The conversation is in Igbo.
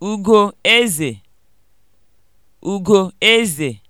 ugo Ugoeze, eze.